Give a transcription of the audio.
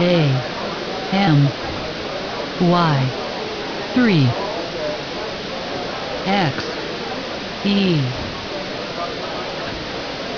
A M Y 3 X E